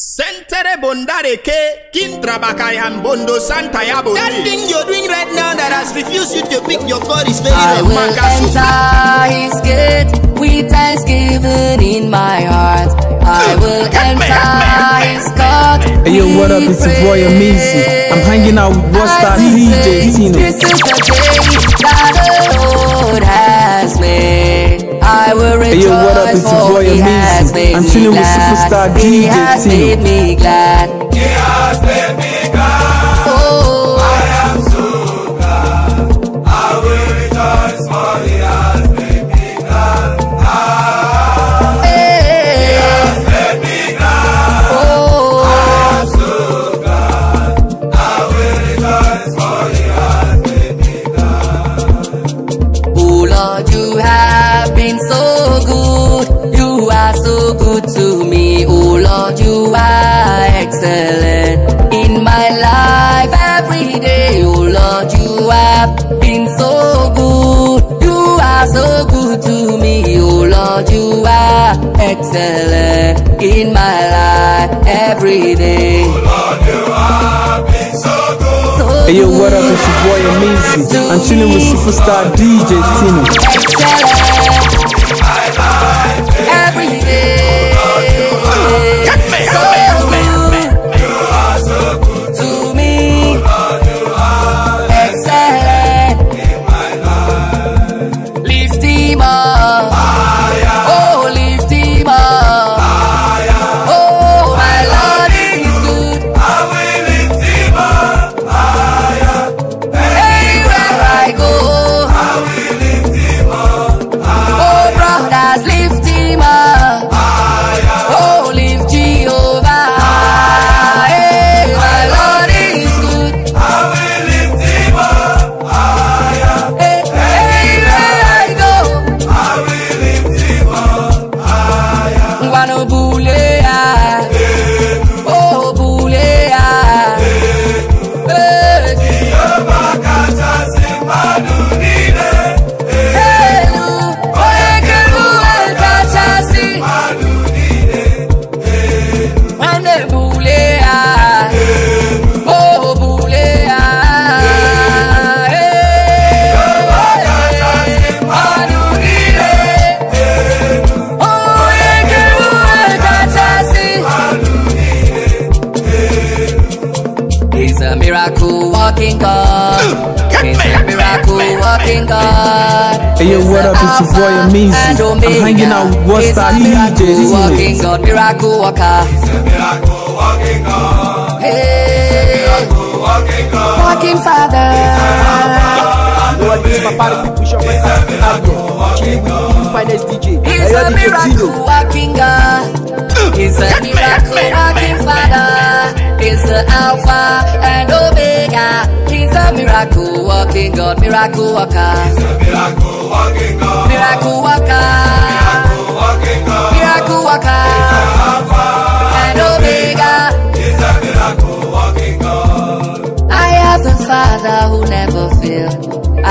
Sentere bondareke, kintrabakayan bondo santa ya bondi. That thing you're doing right now that has refused you to pick your God is very I will enter his gate with thanksgiving in my heart. I will enter his court. Hey yo, what up? It's your boy Amazing. I'm hanging out with Busta DJ Tino. This is the day that the Lord has I will rejoice. Hey, yo, what up? It's your boy Amazing. I'm chilling with superstar DJ Tino. He has made me glad. He has made me have been so good. You are so good to me, oh Lord. You are excellent in my life every day. Oh Lord, you have been so good. Hey yo, what up? It's your boy Amazing. I'm chilling with superstar DJ Tino. Excellent. Binzy. And Omega. I'm hanging out with what's that DJ. It's a miracle walking God, miracle walker. a miracle walking God. Hey. a miracle walking God. Walking Father. Lord, this papa people show my time to have He's a miracle walking God. He's a miracle walking God. is the Alpha and Omega. He's a miracle walking God, miracle walker. He's a miracle walking God. Miracle walker. Miracle walking God. walker. He's the Alpha and Omega. He's a miracle walking God. I have a Father who never failed.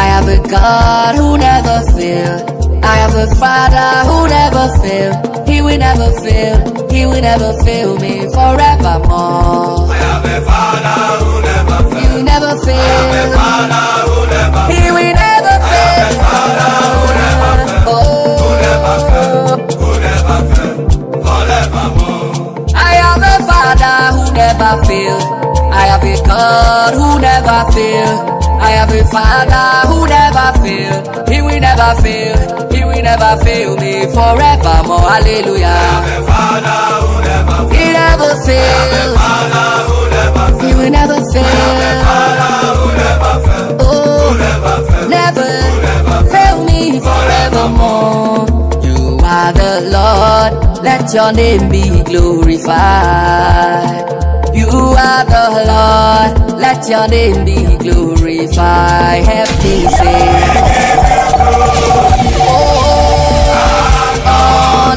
I have a God who never failed. I have a Father who never failed will never fail, He will never fail me forevermore. Oh. I have a Father who never fails. You never fail. I have a Father who never fails. He will never fail. I have a Father who never fails. Oh. Who never fails. Who never fails. Forevermore. I have a Father who never fails. I have a God who never fails. I have a Father who never fails. will never fail, He will never fail me forevermore. Hallelujah. Father, He never fail. He will never fail. Oh, never fail me forevermore. the Lord, let your name be glorified. You are the Lord, let your name be glorified. Have sing. Oh, oh,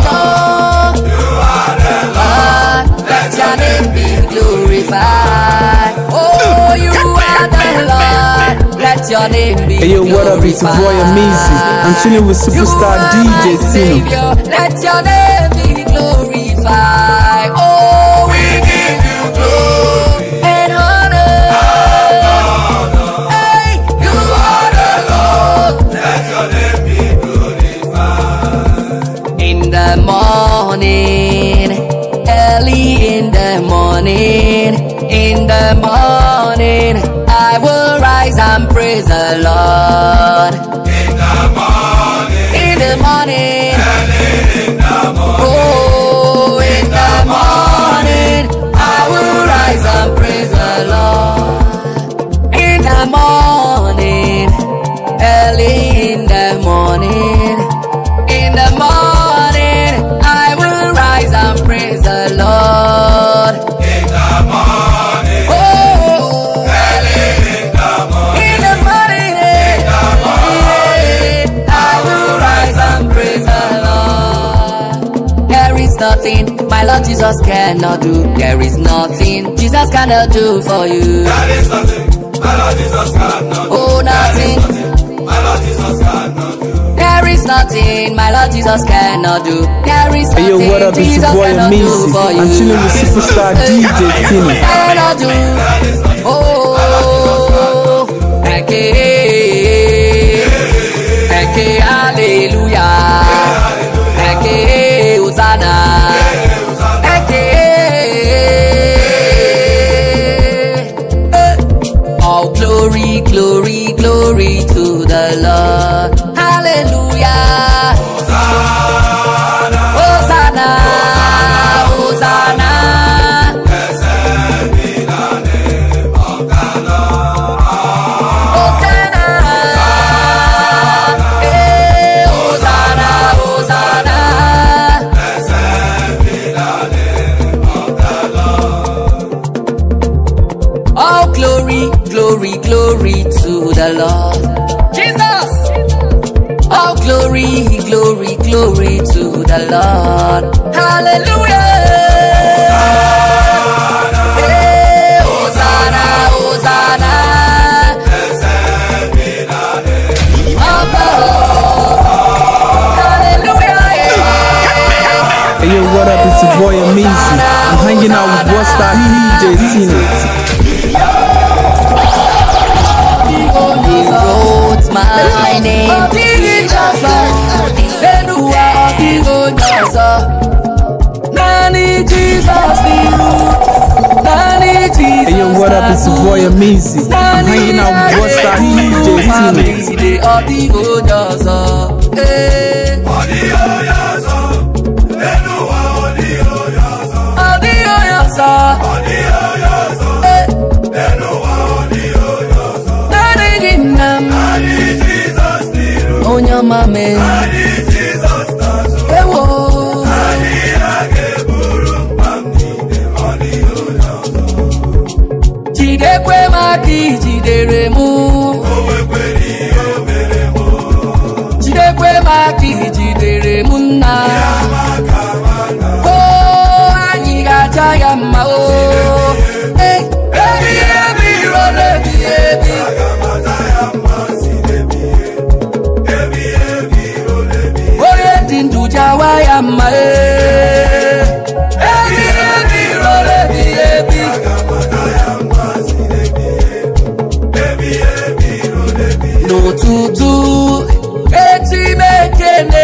oh, you are the Lord let your name be Hey yo, what up, it's your boy Amazing I'm chilling with superstar DJ Sino Let your name be glorified Oh, we give you glory And honor and honor Hey, you are the Lord Let your name be glorified In the morning Early in the morning In the morning I will rise rise and praise the Lord. In the morning. In the morning. cannot do. There is nothing Jesus cannot do for you. There is nothing my Lord Jesus cannot do. Oh, nothing. My Lord Jesus cannot do. There is nothing my Lord Jesus cannot do. There is nothing hey, yo, what up, Jesus boy, cannot amazing. do for you. I'm chilling with superstar DJ Kenny. Cannot do. Oh, okay, okay, hallelujah. glory, glory, glory to the Lord. be to the Lord. Hallelujah. Hosanna, Hosanna. yo, what up? It's your boy Amazing. I'm hanging out with Busta DJ Tina. He wrote my name the Jesus, the Jesus. Hey, yo, what up? It's your boy I'm hanging out with What's That DJ Team. The Onyama me. agadi jidere mụ jidekwe m aka jidere m nna o oh, anyị ga-aja ya mma o oh. ebi ebi iro na-ebi ebi onye dị ndụ jawa ya mma ee eh.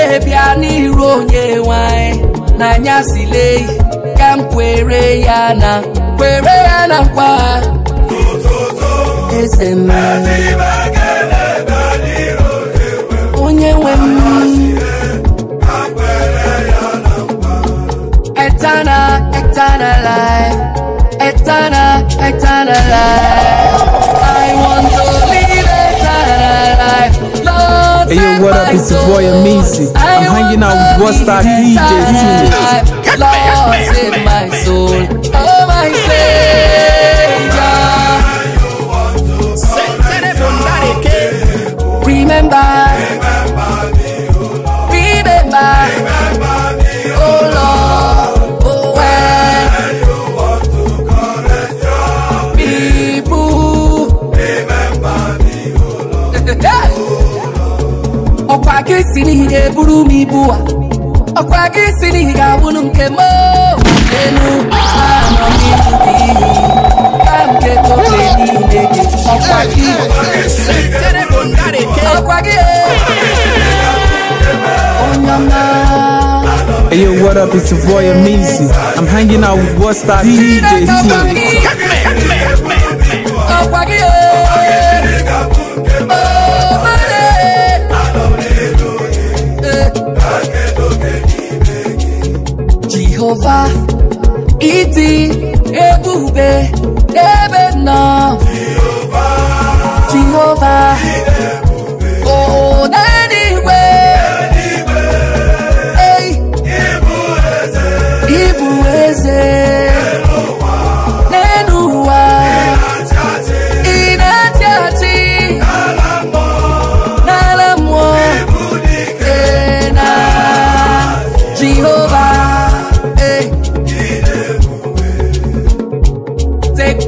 wee bịa n'iru n'anya silei ka kwere ya kwere ya na nkwa onye nwe m eternal life eternal eternal life I want to live eternal life Lord, hey, yo, what up? It's your boy, I'm hanging out with Buster DJ I've lost in my soul. Oh, my Savior. Remember. isi n'ihe buru m ibu a ọkwa gị si n'ihi ga-awụnụ nke m elu anọ n'ihu gị ka nke tobe niile gị ọkwa gị ọkwa gị eh. onye ọma Hey yo, what up? It's your boy Amazing. I'm hanging out with Busta DJ here. sofa, iti, egwube, ebe nọ.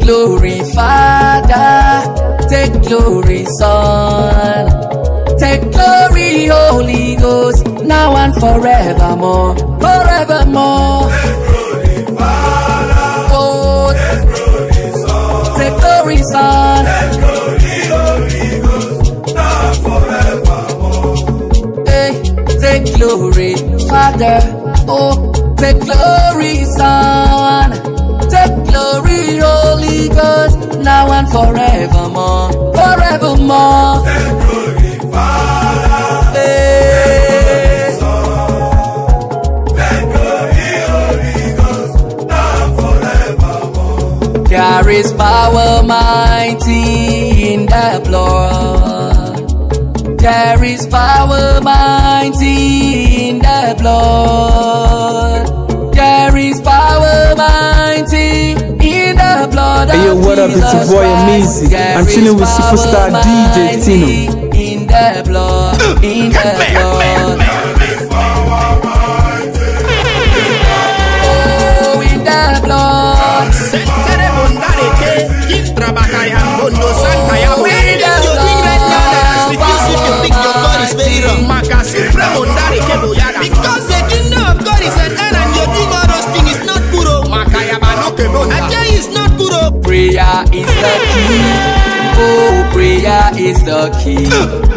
glory, Father. Take glory, Son. Take glory, Holy Ghost. Now and forevermore. Forevermore. Take glory, Father. Oh, take glory, Son. Take glory, Son. Take glory, Holy Ghost. Now and forevermore. Hey, take glory, Father. Oh, take glory, Son. Glory, Holy Ghost, now and forevermore, forevermore. And glory, Father. Hey. There is power mighty in the blood. There is power mighty in the blood. There is power in the blood hey, yo, what up? it's your boy Amazing. I'm chilling with superstar DJ Tino. In the blood, in the blood. in the blood. Because prayer is the key. Oh, prayer is the key.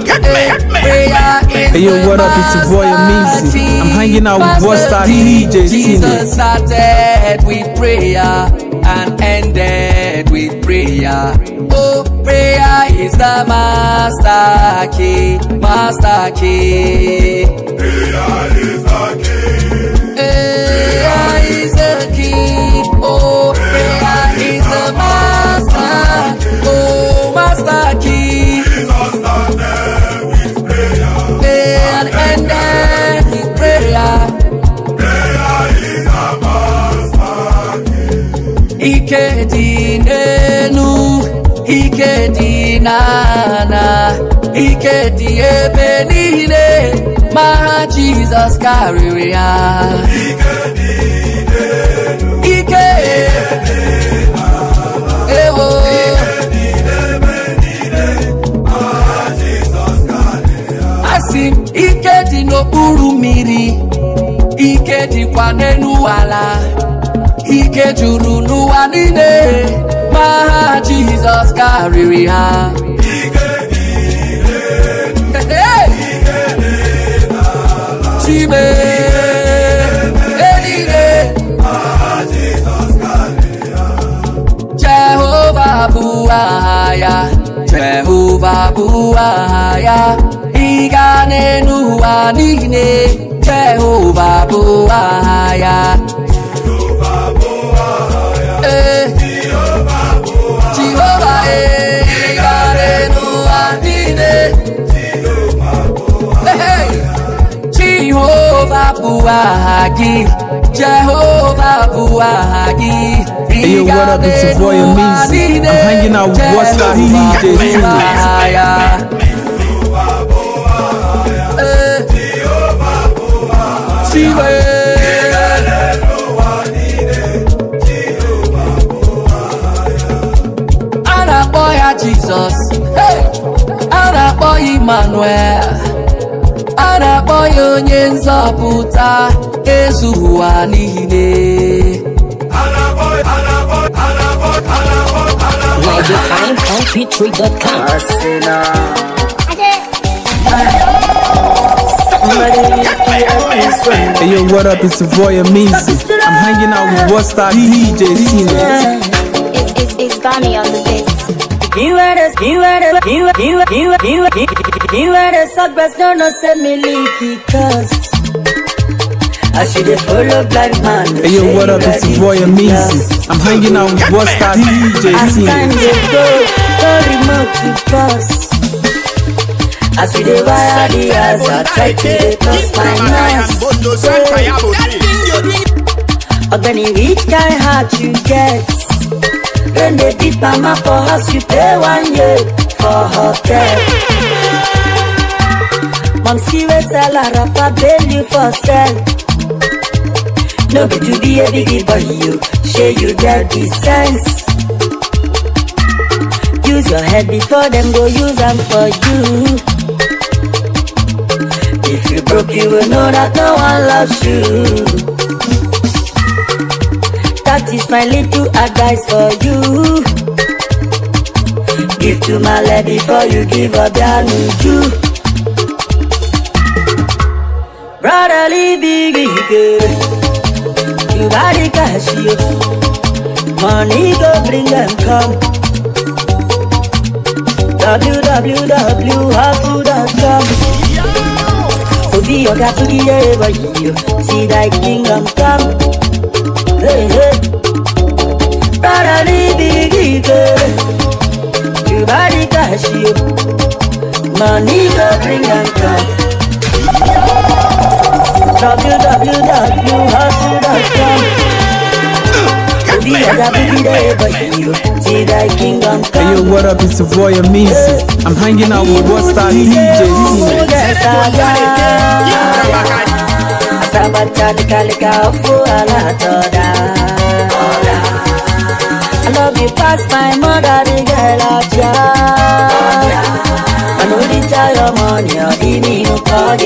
Get me, get me. Eh, prayer is hey, yo, what up? It's your boy Amazing. I'm hanging out with Busta DJ Jesus started with prayer and ended with prayer. Oh, prayer is the master key, master key. Prayer is the key. Prayer is the key. disaster key. Disaster them with And Prayer master key. Ike ike ike ebe niile. My Jesus carry ya. buru mmiri ike dịkwa n'elu ala ike juru n'ụwa niile ma ha Jizọs karịrị ha chime Jehova bụ aha ya Jehovah bụ aha ya Ịga n'elu ụwa niile Jehova bụ aha ya ee Jehova ee ịga n'elu ụwa niile Jehova bụ Jehovah Buahagi. Hey, yo, what up? It's your boy Amazi. I'm hanging out with what's the DJ. somewhere a na-akpọ ya onye nzọpụta ezughị ụwa niile Hey yo, what up? It's Savoya Meezy. I'm hanging out with what's that DJ Cena. It's, it's, it's Bonnie on the beat. You had us, you had us, you, you, you, you, you, Beware the suckers, no, no, send me leaky cuss. I should have follow black man. Hey yo, what up? This is Roy Amazing. I'm hanging out with Busta DJ. As time they go, no remote to pass. I see the wire, the eyes are tight to the cross my nose. Ogani rich guy heart you get. When they beat mama for house, you pay one year for hotel. see we sell a rapper belly for sell no be to be a biggie boy you shey you get the sense use your head before them go use them for you if you broke you will know that no one loves you that is my little advice for you give to my lady before you give up your new brotherly big girl. You got it, cash you. Money go bring them come. www.hustle.com Obi oga tugi eba yo See thy kingdom come Hey hey Brotherly big girl You body cash you Money go bring them come www.hustle.com Orí ẹ̀dá bíbí dẹ̀ bàjẹ́ ti dá kí n gan kan. Hey yo, what up? It's your boy Amazing. I'm hanging out with what's that DJ Tina. Asabata ni kalika I love you past my mother, the girl of yours. I know the tell your money, or give me no call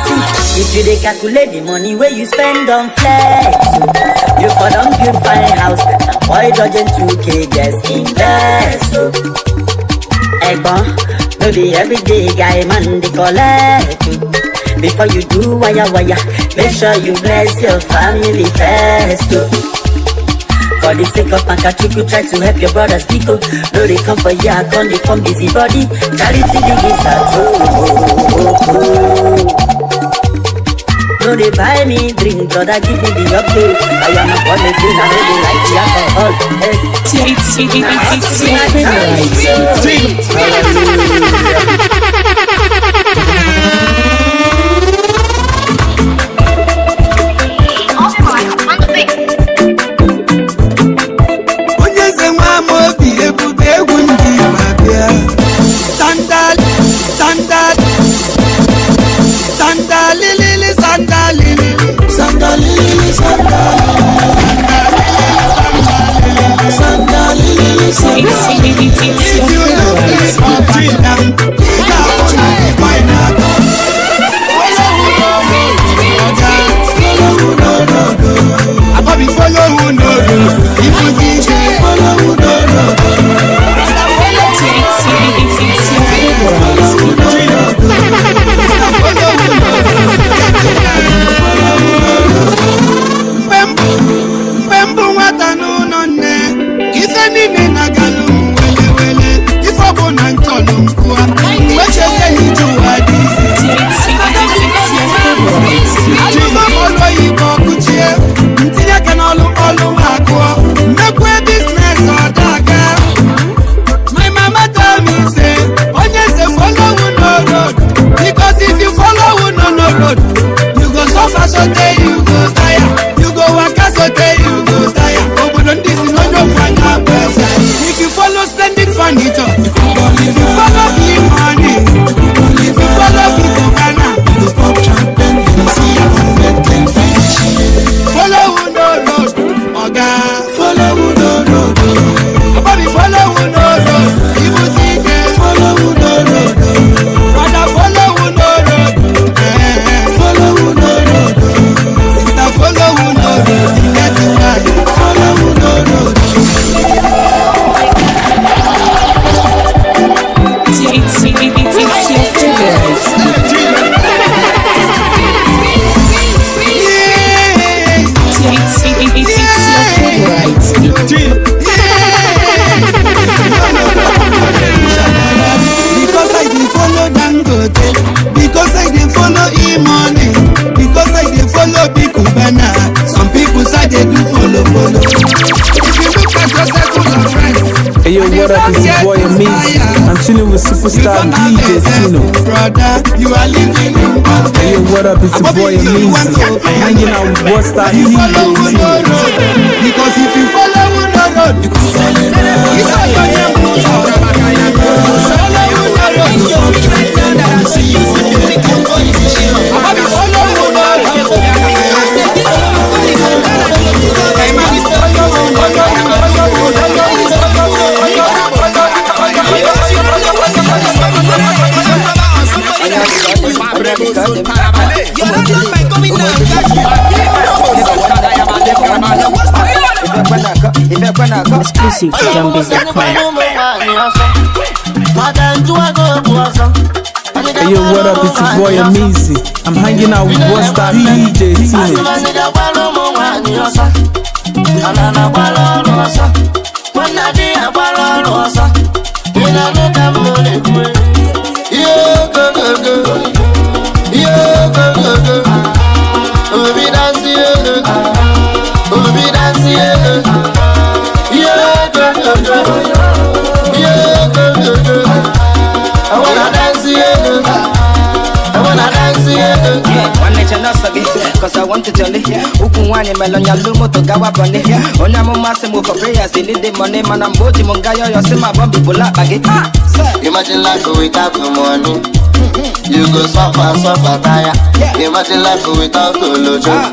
See, if you dey calculate the money where you spend on flex, you for don build fine house, and for a dozen 2K, just invest. Egbon, no be everyday guy man dey collect. Before you do wire wire, make sure you bless your family first. For the sake of you try to help your brothers people. No, they come for ya, gone, they come busybody. Charity begins at No, they buy me drink, brother, give me the update. I am a born again, I know they like the alcohol. Hey. Drink. superstar D Destino. Brother, you are living in one Hey, yo, what up? It's your boy Amazing. Hanging out with what's Busta D Destino. Because if you follow one road, you can follow. You follow your Exclusive to Hey yo, what up? It's your boy Amazing. I'm hanging out with what's that DJ Teenage. nwanne I ọsọ gị kọsa wọntụchọlị ụkwụ nwaanyị melọnya lu moto gawa bọni onye amụma sị m for prayers they need the money mana mgbe o ji m nga yọyọ si ma bọmbi bụla akpa gị Imagine life without the money You go suffer, suffer, tire Imagine life without the lojo ah.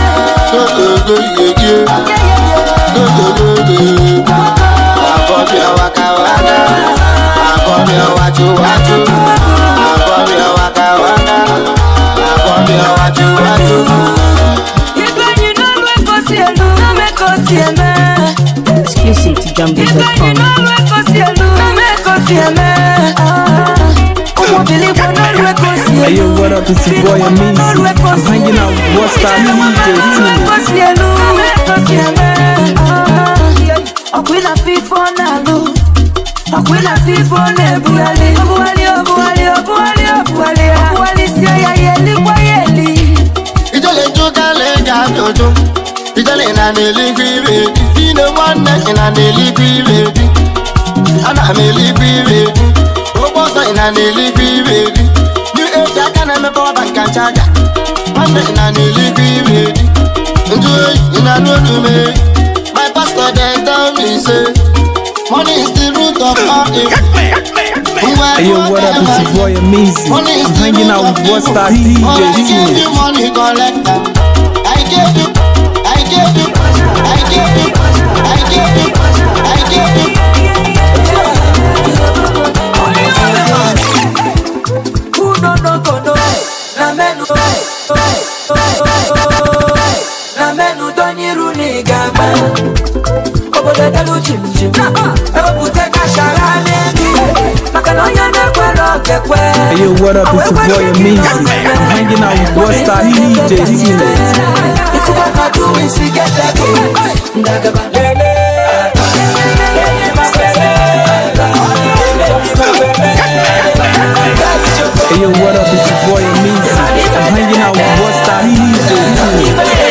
Agora eu acabada, agora eu atu atu, agora eu acabada, agora eu atu atu. Ibanyi nolo ekosielu, nome ekosieme. Exclusive to Jumbo.com. Ibanyi nolo ekosielu, nome ekosieme. Believe we're not reconciled. Hey, yo, what up? It's your boy Amazing. I'm hanging out with What's That DJ Team. Ọ̀pìnà fífọ́ náà ló. Ọ̀pìnà fífọ́ náà buwálé. Buwálé, buwálé, buwálé, buwálé. Buwálé sí ọ̀yà yẹlí wá yẹlí. Ìjọ́lẹ̀ jó kálẹ̀ ga jòjò. Ìjọ́lẹ̀ nà ní lígbì rèdí. Ìnáwó nà ní lígbì rèdí. Àná mi lígbì rèdí ị na n'eluigwe ibe ebi new age aka na-emepe ọba nka chaja nwanne ị na n'eluigwe ibe ebi ndị oyi ị na my pastor dem tell me say money is the root of all Hey yo, what up? It's your boy Amazing. I'm hanging out with What's That DJ. I gave you money collector. I gave you, I gave you. Hey, yo, what up? It's your boy Amazing. I'm hanging out with West Side DJ Hey yo, what up? It's your boy I'm hanging out with Westside DJ.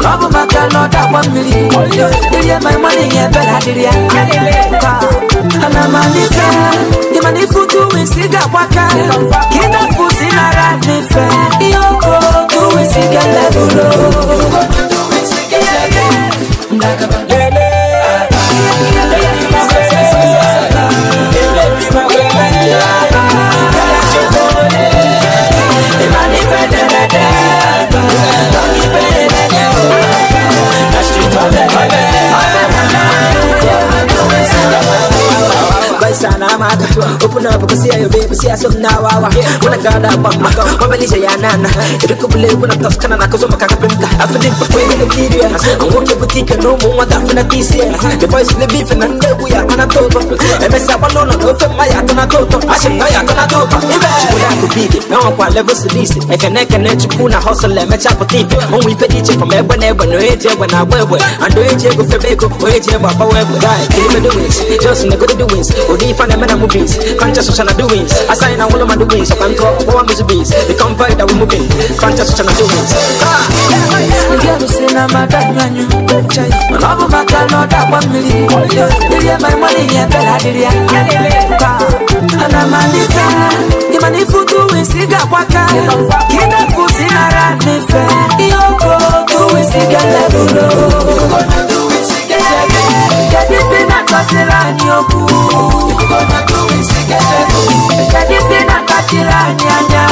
Babu makano that one million. Did you my money and better did you? And I'm a nifa. The money for two see that waka. Get that pussy in a rat nifa. Yoko, do we see that level? Do we see level? Yeah. open up ukasiya yo baby see i siya so na wawa unagada bamba mabelisha ya nana irikubule kuna toskana na kuzoma kakapinda afidin pakwele nigeria angoke butika no mumwa dafina tisia the boys in the beef and then we are gonna talk emesa balona no fe maya tana toto ashim na ya tana toto ibe chukula kubidi na kwa level silisi ekene kene chukuna hustle emecha potifi onwe ife diche from egbe na egbe no eje egbe na agbe ando eje ego febeko oeje egbe abawa egbe guy kilimedo wins just negodo the wins odi ifana mena movies beings, conscious ocean of doings. Assign and all ah. of my doings, so control all my beings. The convoy ah. that we're moving, conscious ocean of doings. Ah, anamaanisha imani futu wisiga kwaka kina kuzinaranife iyoko tuwisiga levulo Kedụ na akpatiri anyị okwu Kedụ na akpatiri anyị anya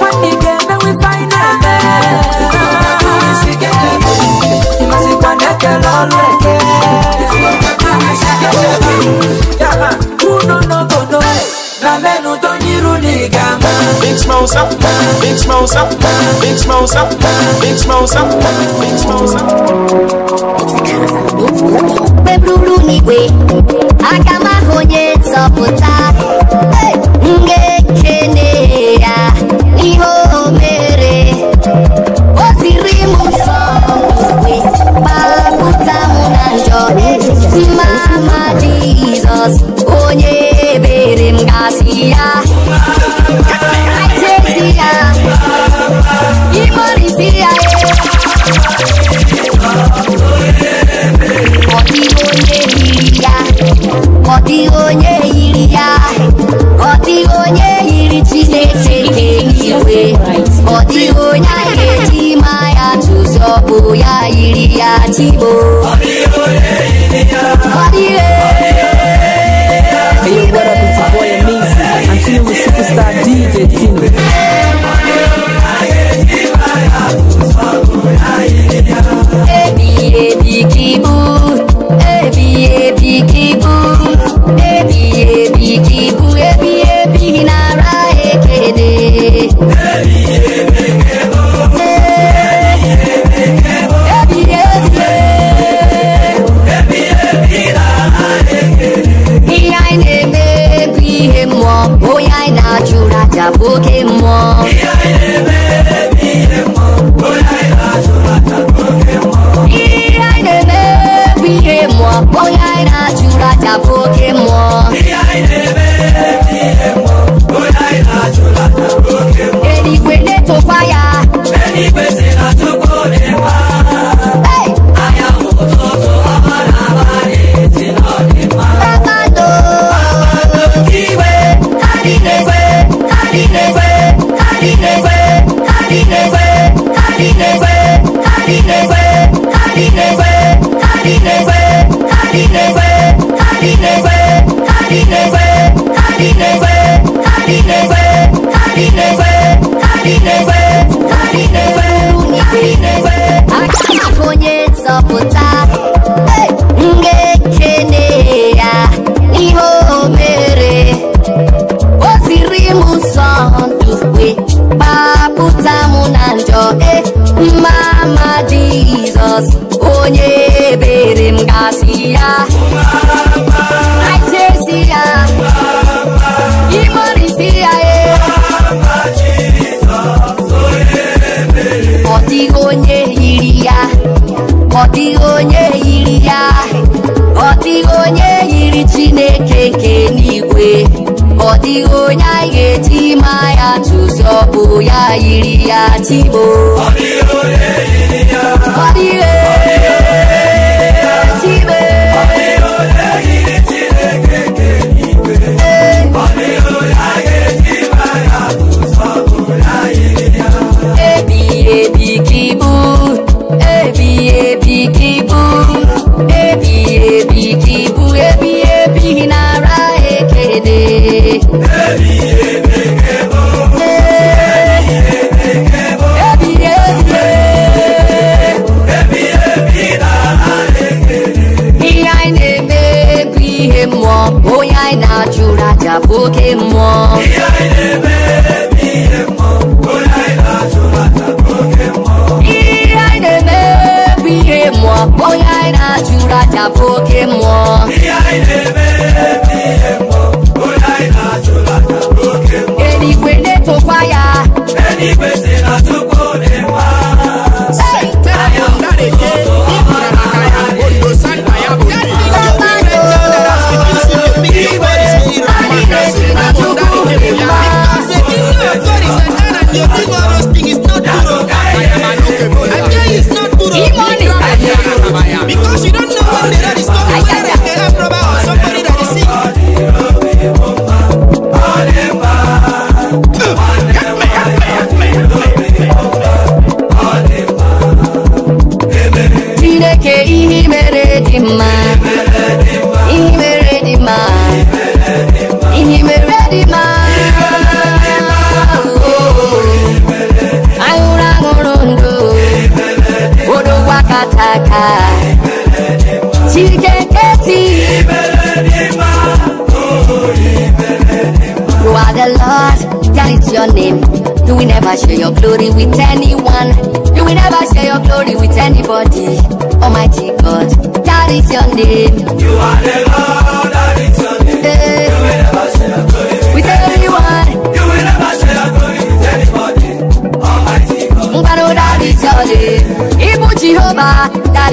Nwanne ị ga-emenwe ife anyị na-eme Ịmasịkwa na-ekele ọrụ eke Unu n'obodo na mẹ́nu tó nírú ní gàmá. big smosa big smosa big smosa big smosa big smosa. Bebruru n'igwe, aka m ahụ onye nzọpụta m ga-ekene ya ihe o mere o ziri m nsọ n'igwe kpapụta aka onye nzọpụta m ga-ekene ya ihe o mere o ziri m ụzọ ndụ wee gbapụta m mama Jesus, onye ebere m gasị ya dịghị onye yiri ya ọ dịghị onye yiri ya ọ dịghị onye yiri chineke nke n'igwe ọ dịghị onye anyị ga-eji ma ya tụzi ọbụ ya yiri ya chimo ọ dịghị onye yiri ya ọ dịghị ta Pokémon. Ìyá ilé bẹ́ẹ̀ mi yẹ mọ́, ó láì láṣọ láta Pokémon. Ìyá ilé bẹ́ẹ̀ mi yẹ mọ́, ó láì láṣọ láta Pokémon. Ìyá ilé bẹ́ẹ̀ mi yẹ mọ́, ó láì láṣọ láta Pokémon. Èdè tó páyà. Ẹni gbèsè látó.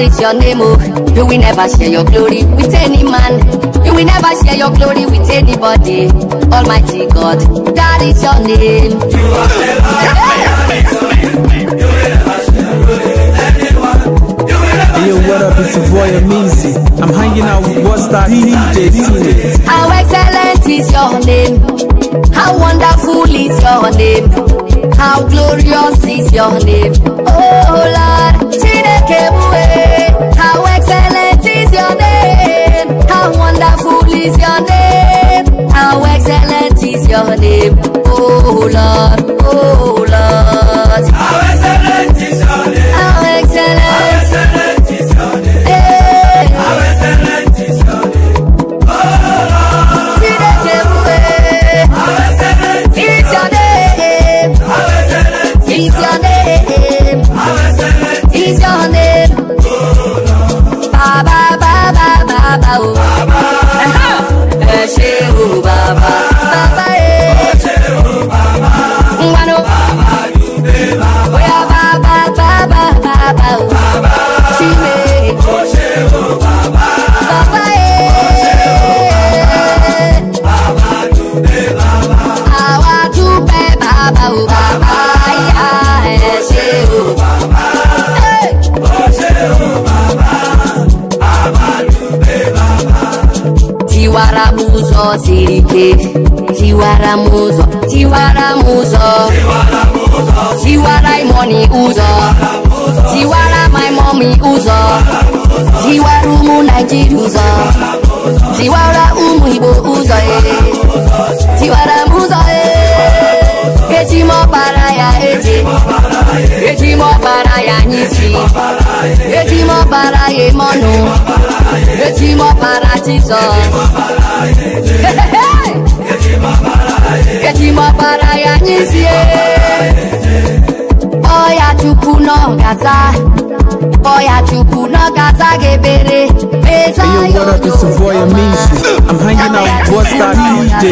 it's your name, oh. You will never share your glory with any man. You will never share your glory with anybody. Almighty God, that is your name. You are yeah. You will never share glory Hey yo, what up? It's your boy Amizi. I'm hanging out with what's that DJ How excellent is your name? How wonderful is your name? How glorious is your name? Oh Lord. Kebuwe, how exciting. òde tiwara muzọ tiwara muzọ tiwara imoni uzọ tiwara my mommy uzọ tiwara umu naijiri uzọ tiwara umu igbo uzọ ee eh. tiwara muzọ ee eh. echi m ọkpara ya eji echi m ọkpara ya n'isi echi m ọkpara ya eme ọnụ m ọkpara Jizọs gaza gaza Hey yo what up it's Savoy boy I'm hanging out with Boss DJ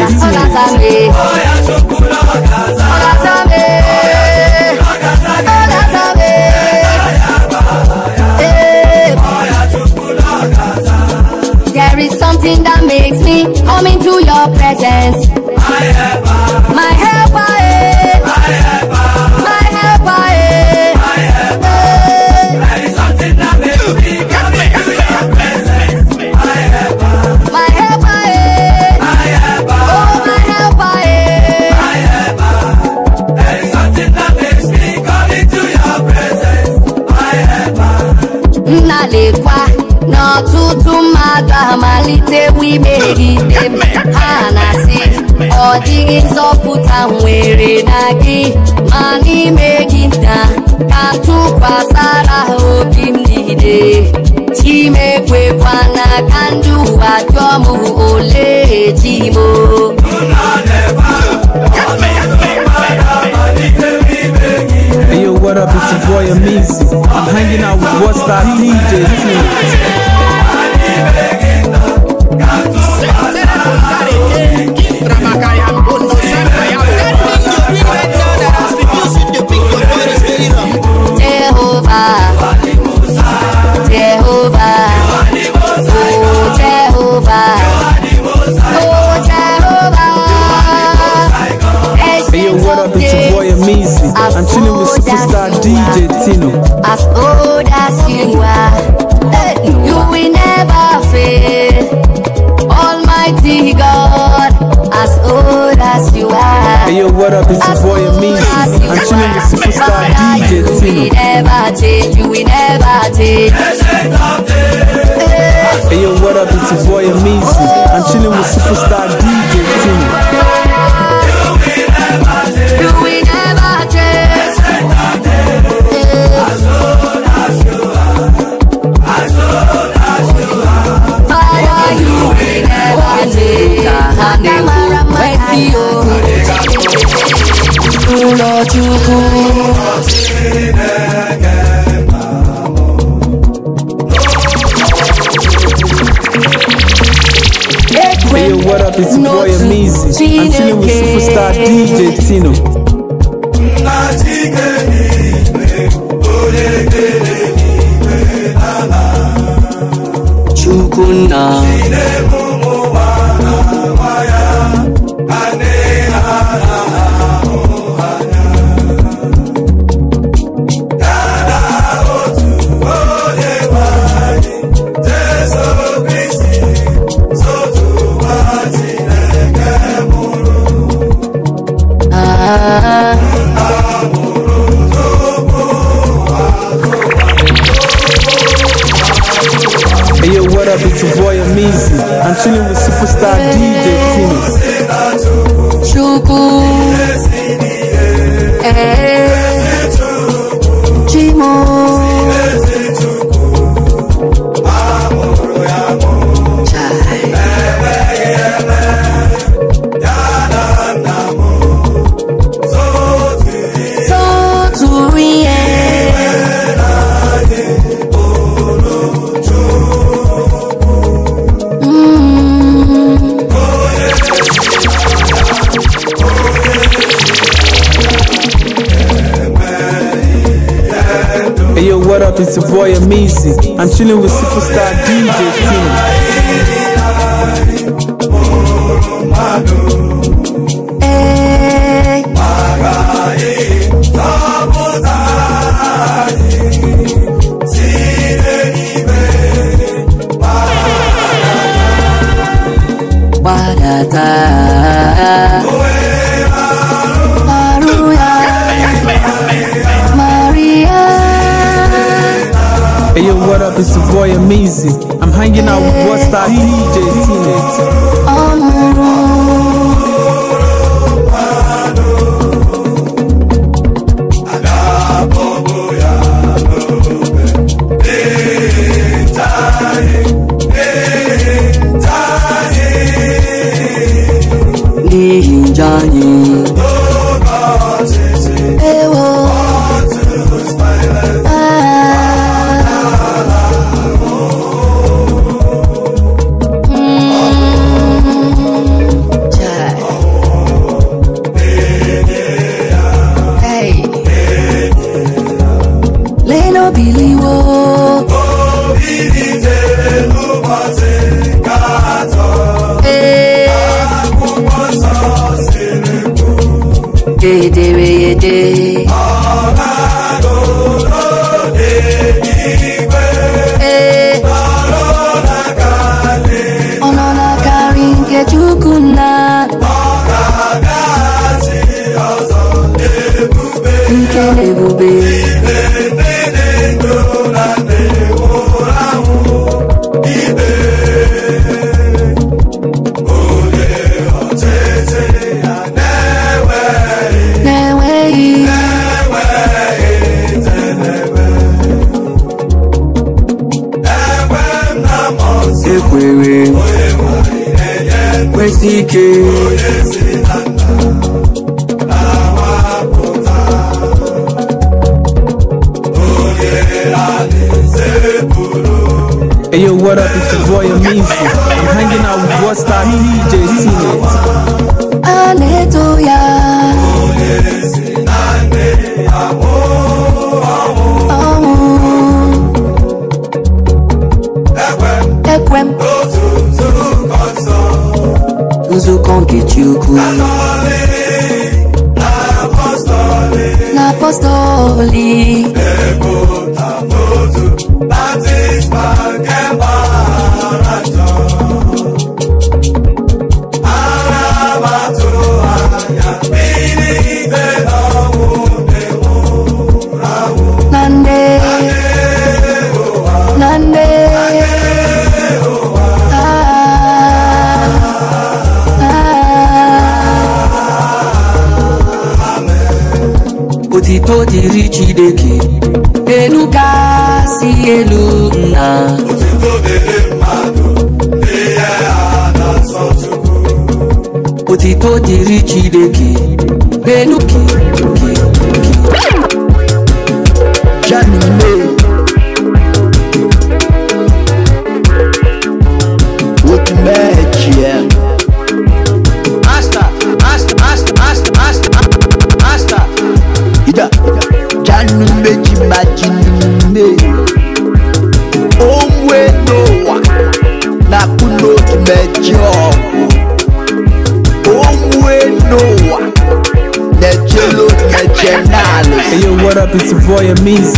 ewu imehie gị ha na-asị ọ dịghị nzọpụta nwere na gị ma n'ime nta ka tụkwasara obi m niile chimekwekwana ka ndị ụwa m ole chimo Hey yo, what up? It's your boy Amizi. I'm hanging out with What's That DJ. I'm chilling with superstar DJ Tino. As old as you are. God, as old as you are. Hey, yo, what up? It's your boy Amin. I'm chilling with superstar DJ Tino. We never change, you never change. Hey, yo, what up? It's your boy Amazing. I'm chilling with superstar DJ Tino. ụlọchukwu Hey, what up? It's your boy Amizi. I'm chilling with superstar DJ Tino. Chukunna. It's your boy Amazing. I'm chilling with superstar DJ Timmy. It's a boy amazing. I'm hanging out with what star DJ Teenage. All around. Jani que boy a means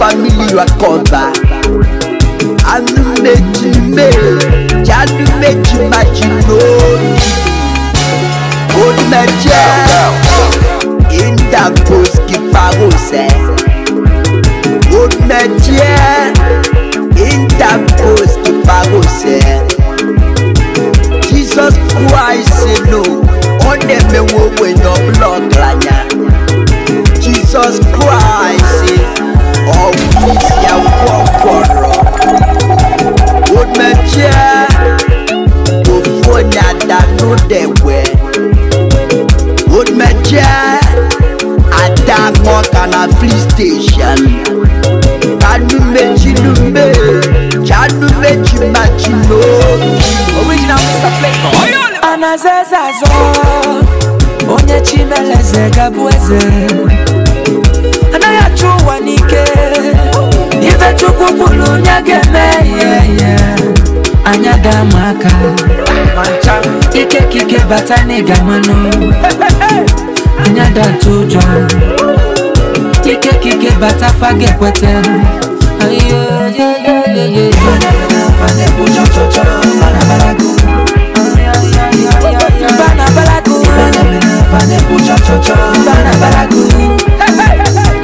family you are covered. Àánú méjì méjì, àánú méjì májì lónìí. Onímẹ̀jẹ̀ Indapos Kiparosẹ̀. Onímẹ̀jẹ̀ Indapos Kiparosẹ̀. Jesus Christ alone, ọ̀nẹ́mẹ̀wò wẹ̀yàn blood làyà. Jesus Christ anazezazo onye chimeleze gabụ eze anayachuwanike ive chukukulu nyagemeyeye anyagamaka ikekikebatanigamano anyadatujwa ikekikebatafagepwete Bana balagu, bana balagu, bana balagu.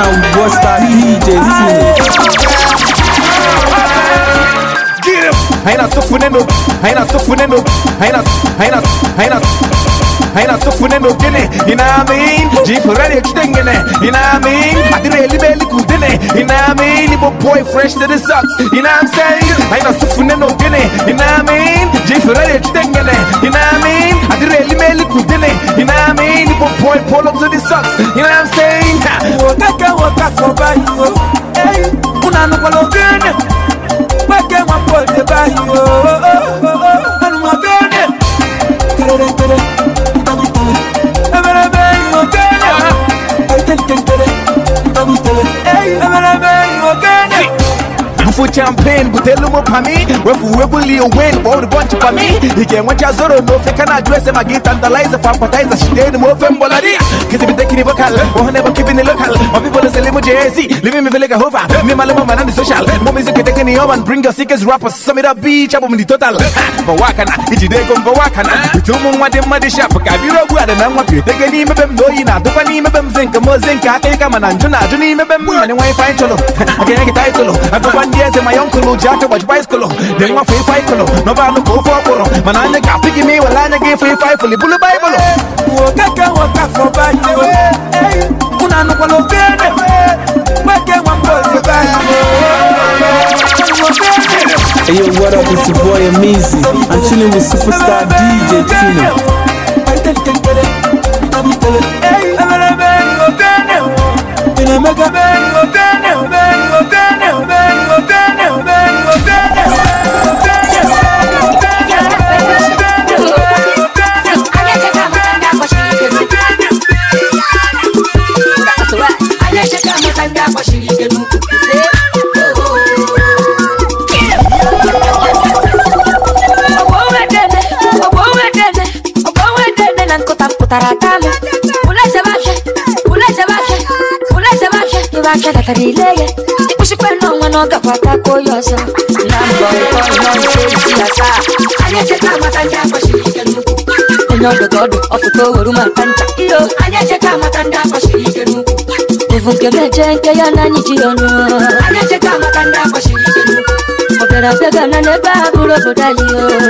na Buster DJ Haina sufu neno, haina sufu neno, haina haina haina aina sofune no gene ina mean jipurani chitengene ina mean adire libeli kudene ina mean ibo boy fresh to the socks ina i'm saying aina sofune no gene ina mean jipurani chitengene ina mean adire libeli kudene ina mean ibo boy pull up to the socks ina i'm saying wakaka wakaka sobayo hey unanu palo gene wake mwapo de bayo Oh, oh, oh, oh, oh, oh, oh, oh, oh, oh, oh, oh, I'm still Hey, i Refu champagne butelu mupami Refu webuli uwen Wawdi bonchi pami Ige mwacha zoro mofe Kana juese magita Andalize fampatize Shiteni mofe mbolari Kisi biteki ni vocal Wahone oh, bo keeping it local My people is a limo JZ Living me vileka hova Me maluma manani social Mo music keteke ni oman Bring your sickest rappers Samira beach Abo mini total Mbawakana Ichideko mbawakana Bitumu mwade mwade shapu them guada na mwapi Teke ni mebem Doi na dupa ni mebem Zinka mo zinka Kika mananjuna Juni mebem Mwani wifi cholo Akene kita itolo Akwa bandia boys in my uncle who jack watch bicycle. Then my free fight color. No bad no go for poro. Man I nigga pick me while I nigga free fight fully bully bible. Waka ka waka for bad no. Hey, una no palo bene. Make one call the bad. Hey yo, what up? It's your boy Amizi I'm chilling with superstar DJ Tino. Hey, I'm a baby, I'm a baby. aka datara ile ya ịkpụchikwana ọnwa na ọ gakwa ataka onye ọzọ na mbọ isi ya taa anyị echeta amata ndị akwachiri ike nnukwu onye ọdụ ka ọdụ ọfụta oweru maka ncha iyo anyị echeta amata ndị akwachiri ike nnukwu evu nke meje nke ya na anyị ji ya ọnụ anyị echeta amata ndị akwachiri ike nnukwu ọ bịara abịa gana n'ebe a bụrụ obodo anyị o anyị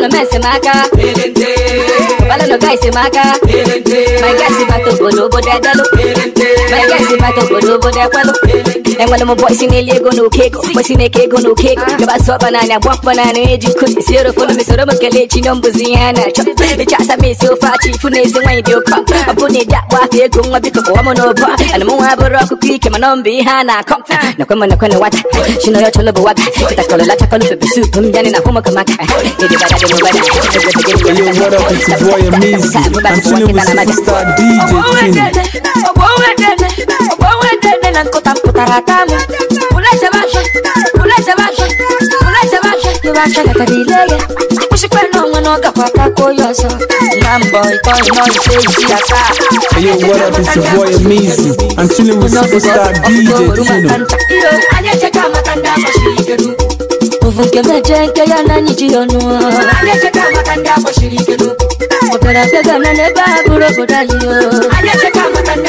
no man si maka Obala no guy si maka My guy si bato bolo bo de delo My guy si bato bolo bo de kwelo Nangwana mo boy sine lego no keko Boy sine kego no keko Gaba ah. so banana bwak banana eji eh, kuti Siro fulu mi soro makele chino mbuziyana Bichasa mi sofa chifu nezi wanyi dioka Mapune ah. da wafi gungwa biko kwa mono ba Anamu ah. waburo kukike manombi hana kom Nakwema nakwena wata Shino yo cholo buwaga Kita kolo la chakolo bebe supu Mjani na homo kamaka Nidi bada demo bada Yo what up it's your boy Amizi I'm chilling with superstar DJ King oh, tarakame Uleze bashe, uleze bashe, uleze bashe Kibashe kakadileye Usikwena umwana wakapaka kuyoso Mambo ikono no iteji asa Hey yo what up it's your boy Amazing. I'm chilling with superstar DJ Tuno Anyeche kama kanda mashikedu Uvuke mejenke ya nani jionu Anyeche kama kanda mashikedu Operasega nane babu robo dayo Anyeche kama kanda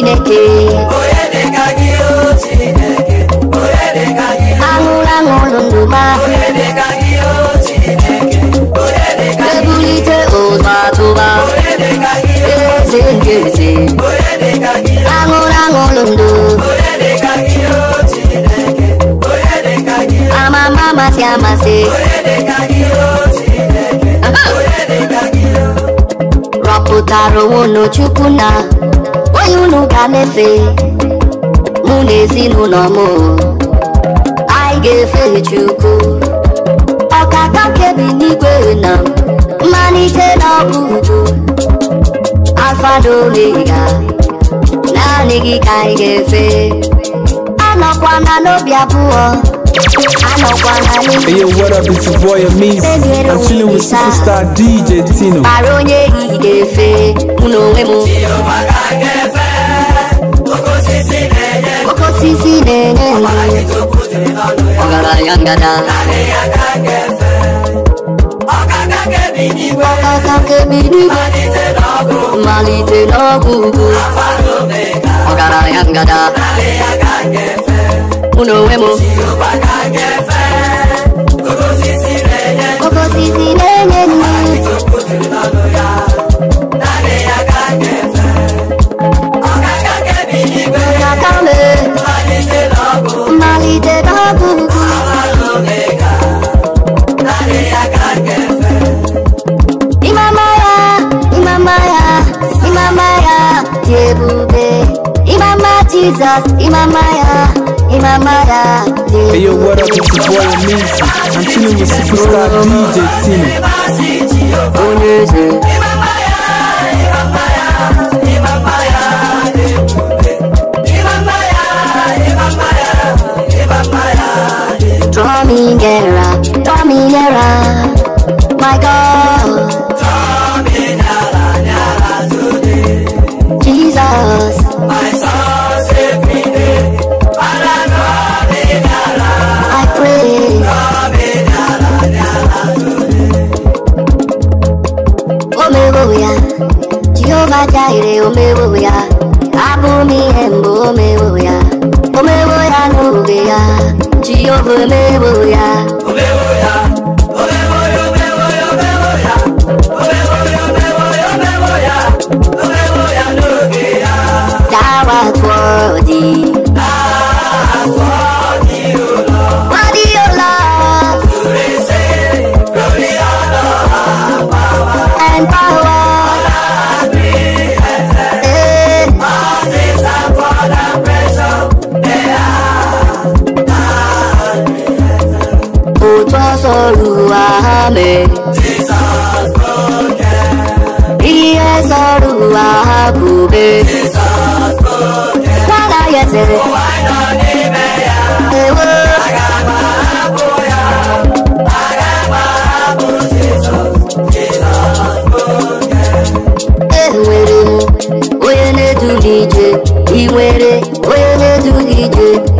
Chineke onye o Chineke onye dịka gị aṅụrụ ma onye dịka o Chineke onye dịka gị ebulite ụzọ atụba onye dịka gị eze nke eze onye dịka gị aṅụrụ aṅụrụ ndụ onye o Chineke onye dịka gị amama amasị amasị onye dịka o Chineke onye dịka gị rọpụtara onwe n'Chukwu na onye unu ga-emefe mụ na ezinụlọ m anyị ga-efe Chukwu ọkaka kebi n'igwe na mmalite na ọgwụgwụ alfa na omega naanị gị ka anyị ga-efe na n'obi abụọ Hey yo, what up? It's your boy Amis. I'm chilling with superstar DJ Tino. Aronye Igefe, Unowemo. Koko sisi nenye Ogara yangada Nane yangagefe Okaka kebinigwe Okaka kebinigwe Malite nogu Malite nogu Afa nomega Ogara yangada Nane yangagefe uno wemo koko sisi lenye ni ọkakame mmalite babubu imama ya imama ya imama ya dị ebube imama jizọs imama ya in my mother. Hey yo, what up? It's your boy Amazing. I'm chilling with superstar DJ Tini. Amazing. Draw me nearer, draw me nearer, my God. majaire omewo ya abụmi ihe mbụ omewo ya omewo ya n'oge ya jehova omewo ya omewo ya Thou art worthy. Oluwale. Jesus Bode. Yes, Oluwakube. Jesus Bode. Kala yese. Owa ino ni meya. Ewo. Agama aboya. Agama abo Jesus. Jesus Bode. Ewere m, onye na-edu I iwere, onye na-edu n'ije.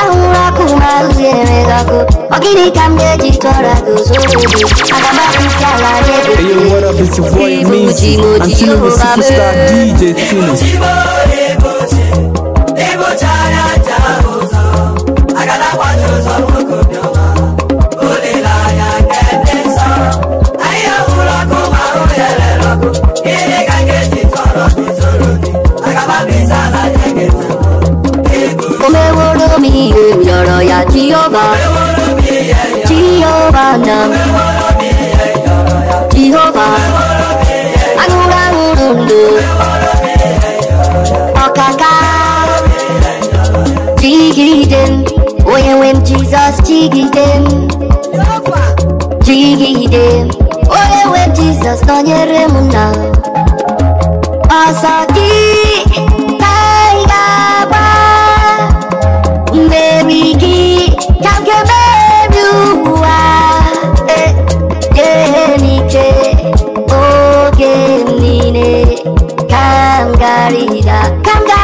Hey, you wanna be the boy, me? I'm feeling the superstar DJ Tunis. に言う鎧やジオバジオバなジオバあのラウルンルおかかジギデンおやウェンジザスジギデンジギデンおやウェンジザスのニェレムナアサギ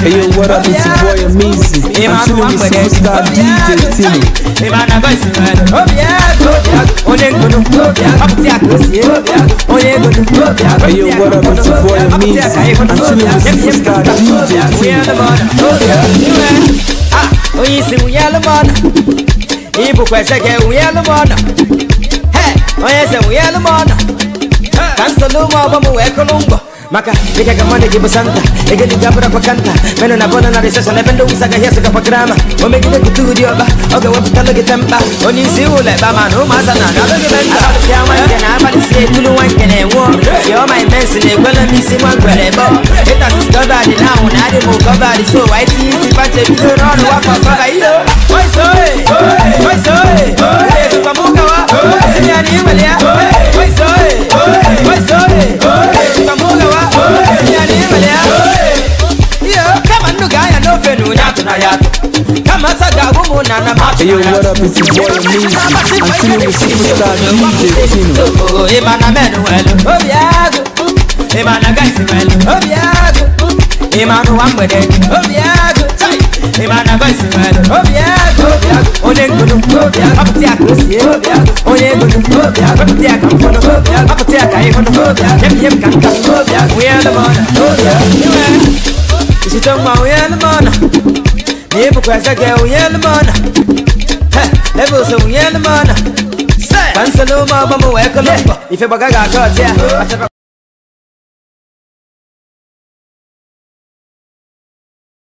Hey yo, what up? It's your boy Amazing. I'm chilling with superstar DJ Tino. Hey yo, what up? It's your boy oh, Amazing. I'm chilling with superstar DJ Tino. Oyisi uyalo mona, ibu kweseke uyalo mona. Hey, oyese uyalo mona. Kansa vamos é colombo. maka di apa suka aku nikaga mwana jibusanta egedijabura pakanta meno nabona narisasa nependa umusagahyesuka pagrama omegide kuturioba ogeweputalogitemba onisiuleba manu masana nabegibentaaaisietuluwankenenwo yomaimensi negwelemisi mwankwerebo itasisitobadi di so si soi, soi, waitisi oi. wafasokailo oisoe oisoe esukamukawa simianiimalia fenu nya tuna ya kama saga gumu na na ma yo what up it's your boy Meezy I'm feeling the superstar DJ Tino oh imana menu welu oh yeah imana guys welu oh yeah imana wambede oh yeah imana guys welu oh yeah onye ngunu apụta ya ka o sie onye ngunu wepụta ya ka mfọdụ apụta ya ka ịhụdụ yem yem ka nka onye alụmọda iwe Isi tong ma uye ni mana Ni ipu kwa sa ke uye ni mana Lebo se uye ni mana Pansalo ma mamu weko lupo Ife baga ga kote